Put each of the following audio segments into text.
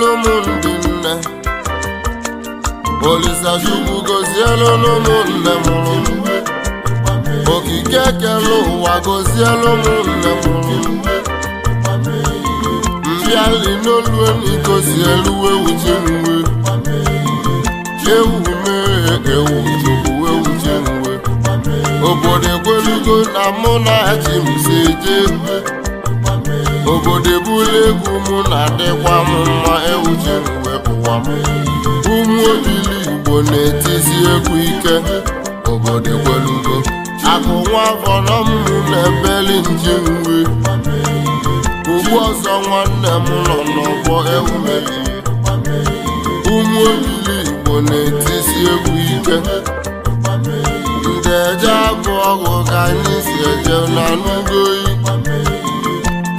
n'ụmụndị nne Olisa Chukwu gozielu n'ụmụnne mụrụ ogige kere ụwa ụmụ nne mụrụ mbịali n'olu gozielu ewu jenwe ewu ewu chukwu jenwe obodo ekwelugo na mụ na ji ewu obodo ebula egwu mụ na-adịkwa m mma ewuche m wepụkwa m ụmụ obili igbo na-etizi egwu ike obodo gwelugo akụ nwa vọrọ m na-ebeli nji nri ugbu ọzọ nwanne m nọ n'ọgbọ ewume ụmụ obili igbo na-etizi egwu ike ndị eje abụ ọgụ ka anyị si eje na n'ugoyi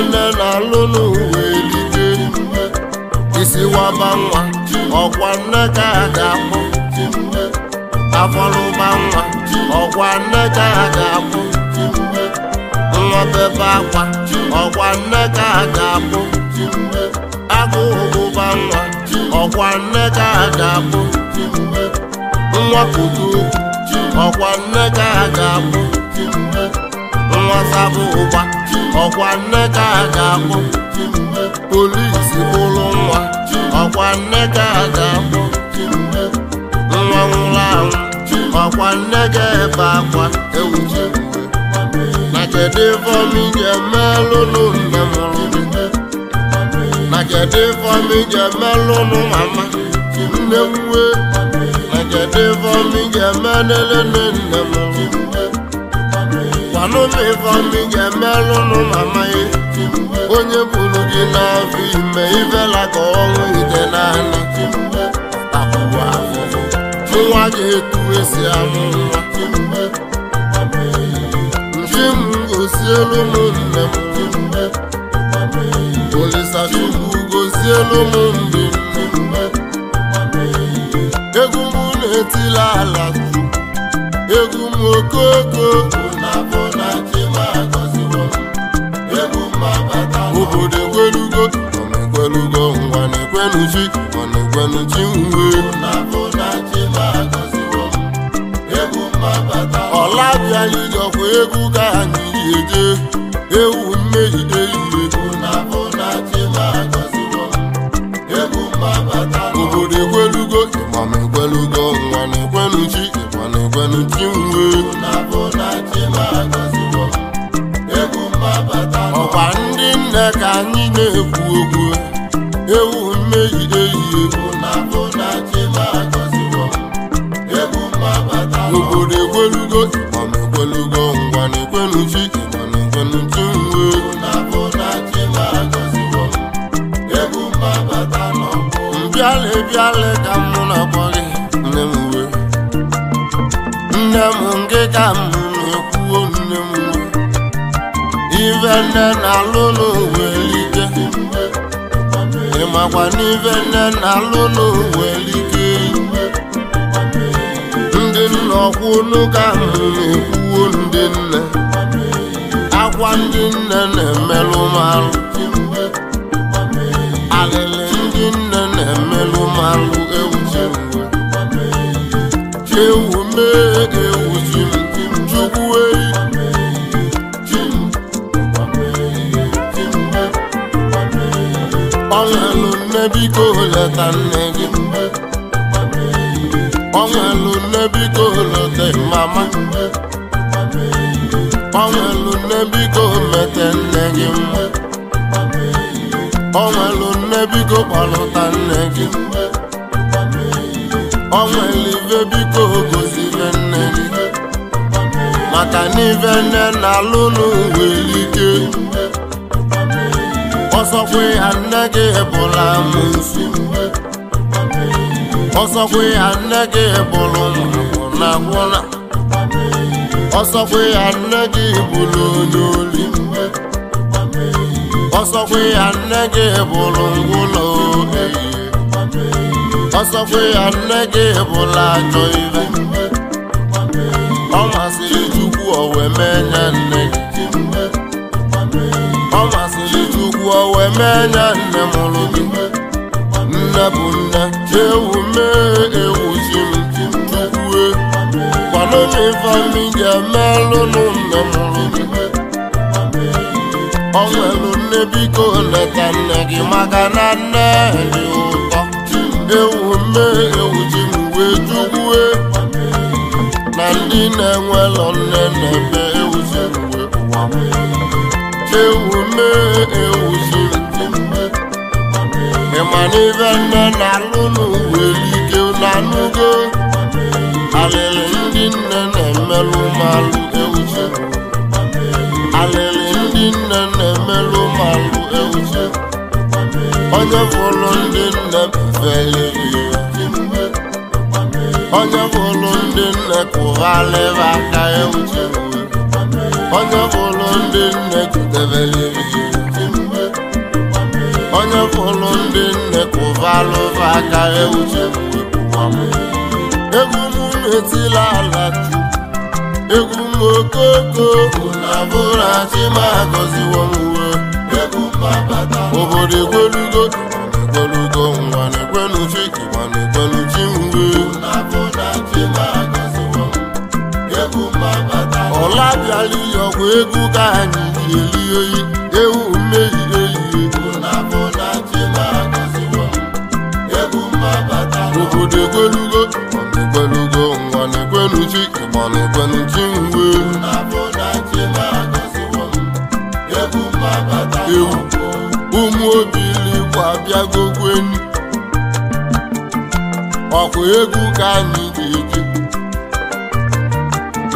ele na-alụ n'ụwa elige isi waba nwa ọkwa nne ka a ga-akpụ afọrụba nwa ọkwa nne ka a ga-akpụ nwa bebe akwa ọkwa nne ka a ga-akpụ agụ ụbụba nwa ọkwa nne ka a ga-akpụ nwa kudu ọkwa nne ka a ga-akpụ nwata bụ ụgba ọkwa nne ka a ga bụ polisi ụlọ nwa ọkwa nne ka a ga nwa nwụrụ anwụ ọkwa nne ga-ebe akwa ewu na kedu ifeọmị ga-emelụ nne mụrụ na kedu ga mama nne na kedu ga nne mụrụ anụmiva ị ga-emelụ nụ mama onye buru gị n'afọ ime ivela ka ọnwụ ide naanị nwa ga-etu esi amụ nwa njem gosielu ụmụnne m Olisachukwu gosielu ụmụnne m egwu m na-etila ala egwu m okoko obodo ekwelugo ekwelugo ngwa na chi chi ọla bịa ịjọkwa egwu ka anyị ji ewu mmegide na ọkwa ndị nne ka anyị na-ekwu okwu ewu mmehie ehihie obodo ekwelugo mana ekwelugo ngwana ekwenuchi mana ekwenuchi nwe mbịala bịala ka m nna m na nne na-alụ n'owelike ịmakwa n'ive na ndị nna ọkwụ n'ụka ahụ na-ekwuo ndị nne akwa ndị nne na-emelụ malụ alịlị ndị nne na-emelụ malụ ewu ewu mee ewu biko leta nne gị onwelu nne biko leta mama onwelu nne biko mete nne gị mgbe onwelu nne biko kpọlụta nne gị mgbe onwelu ive biko gozire nne gị maka na ive nne na-alụ n'ụwa elike ọzọkwe nne gị bụla amụsụ ọzọkwe anaghị gị bụrụ na gwụna ọzọkwe nne gị bụrụ onye oli ọzọkwe anaghị gị bụrụ ngwụlọ ọzọkwe nne gị bụla ajọ ire ọ masịrị Chukwu owe mee nye wee mee nya nne mụrụ gị nne bụ nne ewu mee ewu zimue kwanụnivami ga-emelụnụ nne mụrụ gị ọ nwelụ nne biko leta nne gị maka na nne dị ụtọ ewu mee ewu zimwe juwue na ndị na-enwelọ nne na-eme ewu zimwe ewu mee ma n'ibe nne na-alụ n'ụwa elike unu anụgo alịlị ndị nne na-emelụ ụmalụ ewuche alịlị ndị nne na-emelụ ụmalụ ewuche onye fụlụ ndị nne feliri onye fụlụ ndị nne kụghalịba aka ewuche onye fụlụ ndị nne jidebeliri onye fụrụ ndị nne kụvalụva aka euche m egwu m metila ala egwu m okoko na bụra chimagoziwo m uwe obodo egwelugo egwelugo nwa na ma na-ekwenu mgbe ọla bịala iyi ọgwụ egwu ka anyị ji eli oyi ụmụ obi ilikwa enyi ọkwa egwu ka anyị ga-eji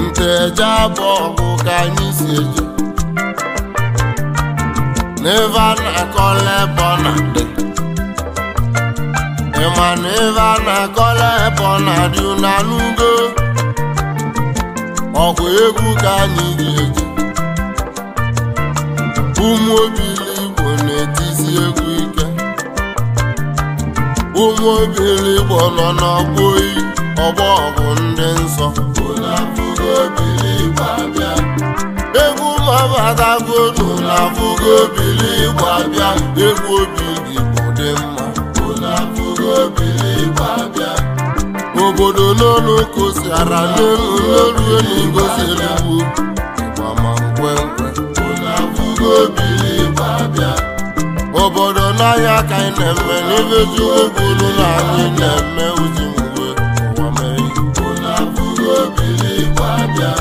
nte eje abụ ọgụ ka anyị si eje n'ebe a na-akọla ebe ọ na-adị ịma na ebe na-akọla ebe ọ na-adị ọkwa egwu ka anyị ga-eji ụmụ Igbo na-etizi egwu ike ụmụ obi Igbo nọ n'ọgbọ oyi ọgbọ ọgụ ndị nsọ egwu mabadagonu na afụgo obili Igbo abịa egwu obi Igbo dị mma obodo n'ọnụ kosiara n'elu n'elu elu obodo n'ahịa ka anyị na-eme n'ebe eziokwu olu na anyị na-eme uzi mgbe ụwa mere abụghị obiliba bịa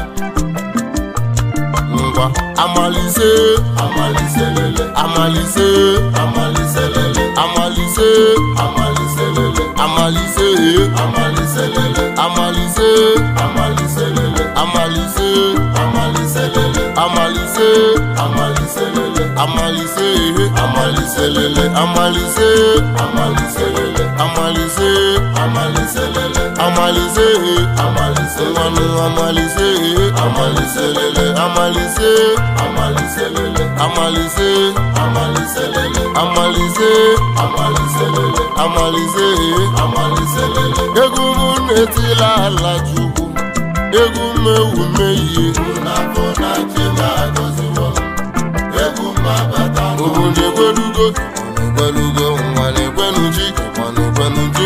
ngwa amalise amalise amalise amalise amalise amalise amalise amalise amalise lele amalise amalise lele amalise amalise lele amalise amalise nwanu amalise amalise lele amalise amalise lele amalise amalise lele amalise amalise lele amalise amalise lele egwu m na-etila ala chukwu egwu m ewu mehie egwu obodo ekwelugo ekwelugo nwa na-ekwenuji mana ekwenuji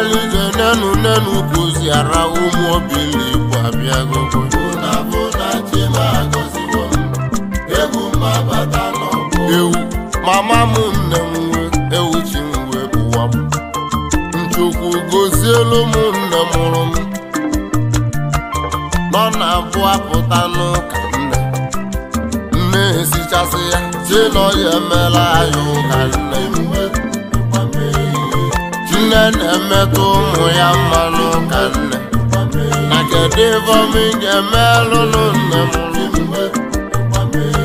nri nenu nenu kụzi ara ụmụ obili mama m nne m nwe ewuchi m wee bụwa m nchukwu gozielu m nne mụrụ m ọ na-abụ apụta n'ụka nne Nne esichasị ya chilọ ya emela anyị ụka nne nne na-emetụ ụmụ ya mma n'ụka nne na kedu ivom ga-emelụnụ nne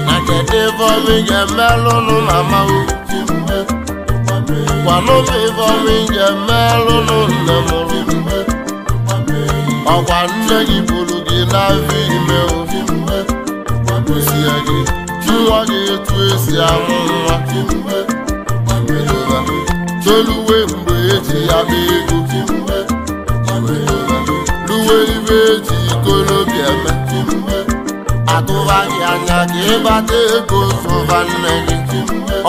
na kedu ivom ga-emelụnụ na mmanwụ kwanụm ivom ga-emelụnụ nne mụrụ ọkwa nne gị bụrụ gị n'afọ ime obi jụọ gị etu esi amụ nwa toluwe mgbe eji ya mee ego luwe ibe eji ikolobi eme atụba anya ka ịbata ego zụba nne gị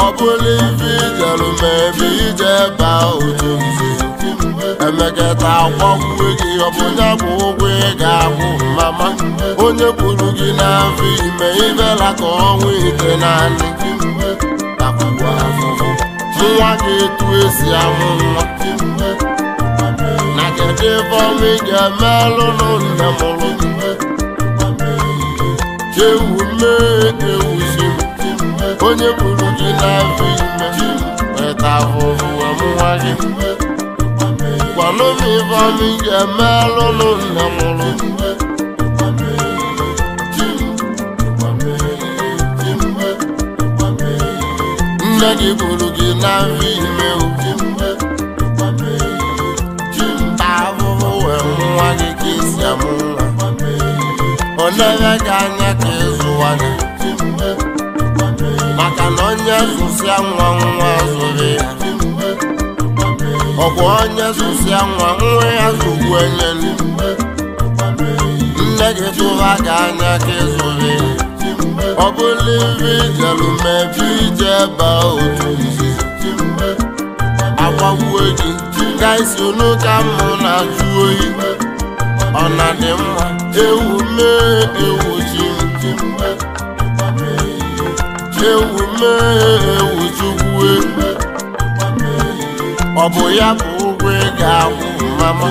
ọ bụla ibi ijerụ ma ebe ije baa otu emeketa akwanwe gị ọbụnya bụ ụgwọ ị ga-ahụ mama onye kwuru gị n'afọ ime ibela ka ọnwa ite naanị nwa ga-etu esi amụ nwa na kedu ebe ọnwa ị ga-emelụ n'ụlọ mụrụ chewu mmee ewuzi onye kwuru gị n'afọ ime eta ahụhụ ọmụnwa gị ọnụmi ibeọma iji eme alụnụ na mụrụ mgbe nne gị buru gị na nri ime ubi mgbe ahụhụ wee nwa gị ka isi nwa ọ na gị anya ka ịzụwa maka na onye zụsịa nwa nwa zụrụ ya ọ bụ onye zụzia nwa nwa ya zụgbu enye nne gị tụra gị anya ka ịzụrụ ọ bụla ibe ijeru mebi ije ba otu izi agbagbuo gị gaisi unu ka mụ na-ajụ oyi ọ na dị mma ewu mee ewu ji ewu mee ewu chukwu e. ọ bụ ya bụ ụgwọ ga ahụ mama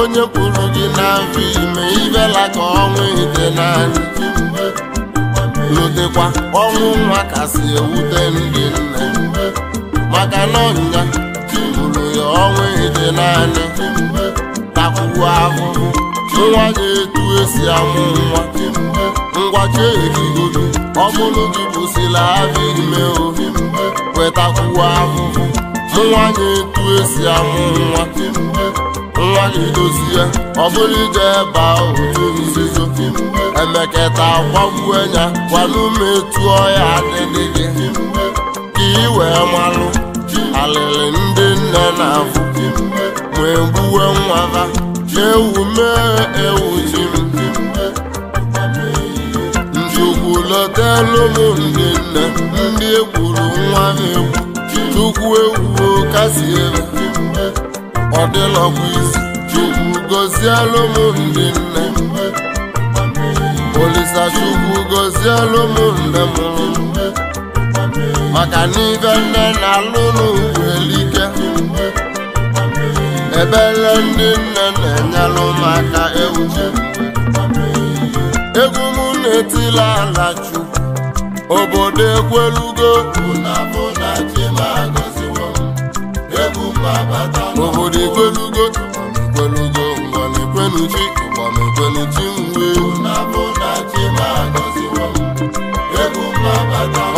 onye kwuru gị na mfe ime ibela ka ọnwa ite naanị lotekwa ọnwụ nwa kasị ewute ndị nne maka na ọnya bụrụ ya ọnwụ ite naanị takwuo ahụhụ nwa ga etu esi amụ nwa ngwachi erigoro ọ bụrụ gị kwụsịla abịa ime ohi wetakwuo ahụhụ nwa ga-etu esi amụ nwa nwa ga-edozi ya ọ bụrụ ije ebe ahụ nzuzo emeketa gwagbuenya m etu ọya adịdị gị ka ị wee malụ alịlị ndị nne na-afụ wee gbuwe nwa ewu mee ewu ji njukwulọtelụ m ndị nne ndị egburu nwa ha egwu chukwu ewu kasi ewu mgbe ọ isi chukwu gozielụ m ndị nne mgbe olisa chukwu gozielụ m nne m mgbe maka n'ibe nne na-alụ n'ugwu elike ebele ndị nne na-enyelụ maka ewu egwu m na-etila ala chukwu obodo ekwelugo obodo ekwelugo ekwelugo mgbaekwenuchi mgbaekwenuchi mgbe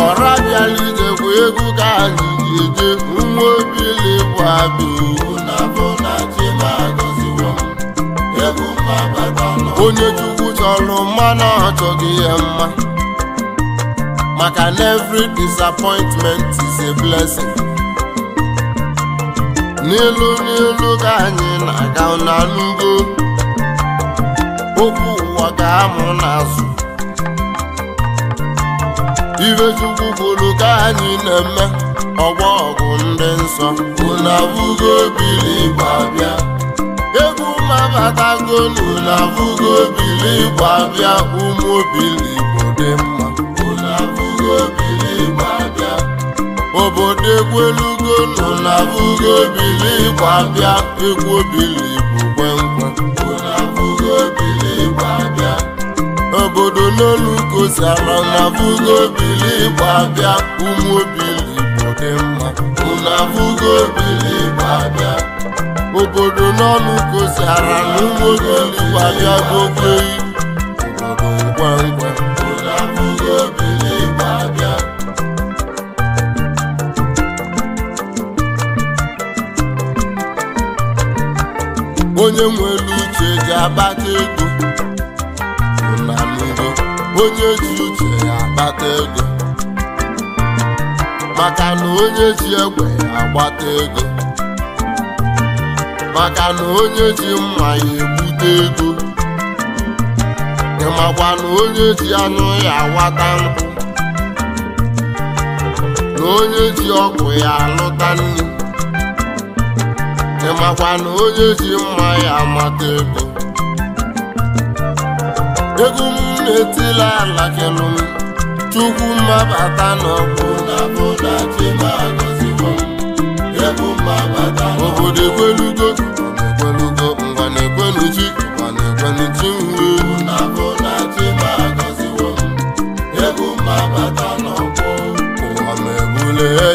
ọra bịala ijekwa egwu ka anyị ga-eje nwa obili bụ abụ onye chukwu chọrọ mmanụ na ọ chọghị ya mma maka na every disappointment is a blessing n'elu n'elu ka anyị na-aga n'alụgo okwu ụwa ga-amụ n'azụ ibe chukwu kwuru ka anyị na-eme ọgbọ ọgụ ndị nsọ unu abụgo egwu mabatago n'unu abụgo bili abịa ụmụ bili igbo dị mma obodo egwu elugo nọ na abụghị obili gbabịa egwu obili bụ kwenkwe obodo n'olu kosara na abụghị obili gbabịa ụmụ obili bụ dị mma abụghị obili gbabịa obodo n'ọnụ kosara na ụmụ obili bịa bụ okwe onye nwere uche ji akpata ego na n'ihu onye ji uche ya akpata ego maka na onye ji egwu ya agbata ego maka na onye ji mma ya ebute ego ịmakwa na onye ji anụ ya awata nkụ na onye ji ọgwụ ya alụta nri ịmakwa na onye ji mma ya amata ego ego m na-etila ala kelụ m chukwu mmabata n'ọkụ obodo ekwelugo ekwelugo ngwa na-ekwenu chi ngwa na-ekwenu chi nri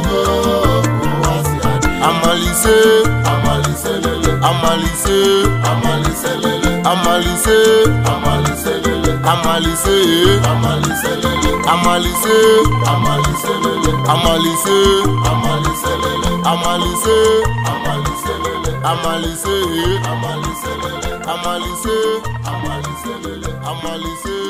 amalise amalise lele amalise amalise lele amalise amalise lele amalise amalise lele amalise amalise lele amalise amalise amalise amalise amalise